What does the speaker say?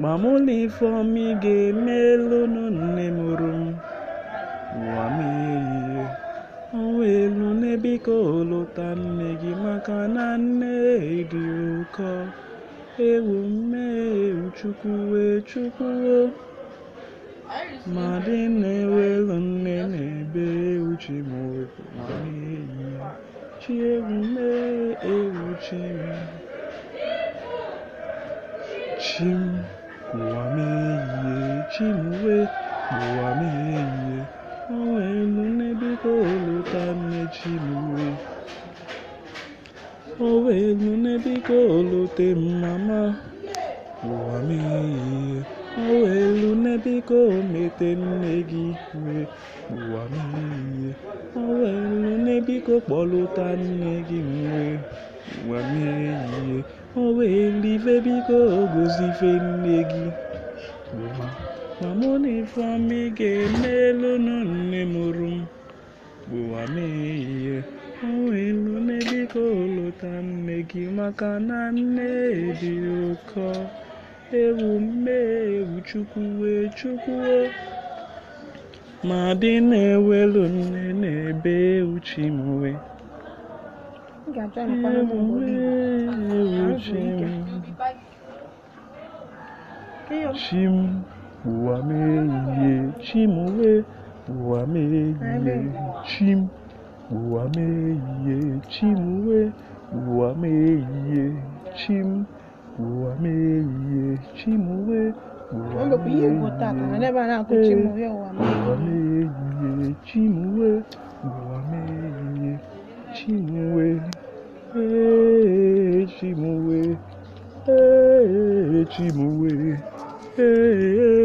Gbamụlifọm ị ga-emelụnụ nne mụrụ m, ụwa m ọnwa elu nne lọta nne gị maka na nne dị ụkọ, ewu mmeghew Chukwu wee Maadị ma nne na ewu Chi mụrụ ụwa m ehie, chi ewu mee. Chim Nwameihie Chinwe Nwameihie Onwenu n'ebiko oluta nne Chinwe Onwenu n'ebiko olute mama Nwameihie Onwenu n'ebiko omete nne gị iwe Nwameihie Onwenu biko kpọlụta nne gị nwe nwa mmiri ehihie o welive biko ogozife nne gị ma mụ na ifeọma ga-emelụnụ nne mụrụ m gbuwa m ehihie o welu biko lụta nne gị maka na nne dị ụkọ ewu mme ewu wee chukwuo ma dị na-ewelu nne na-ebe uchi mwe chim ụwa mehihe chim uwe ụwa mehihe chim ụwa mehihe chim uwe ụwa mehihe chim ụwa mehihe chim uwe Ngakwa ihe egwu na n'ebe a na-akụchi m ụwa ụwa mee.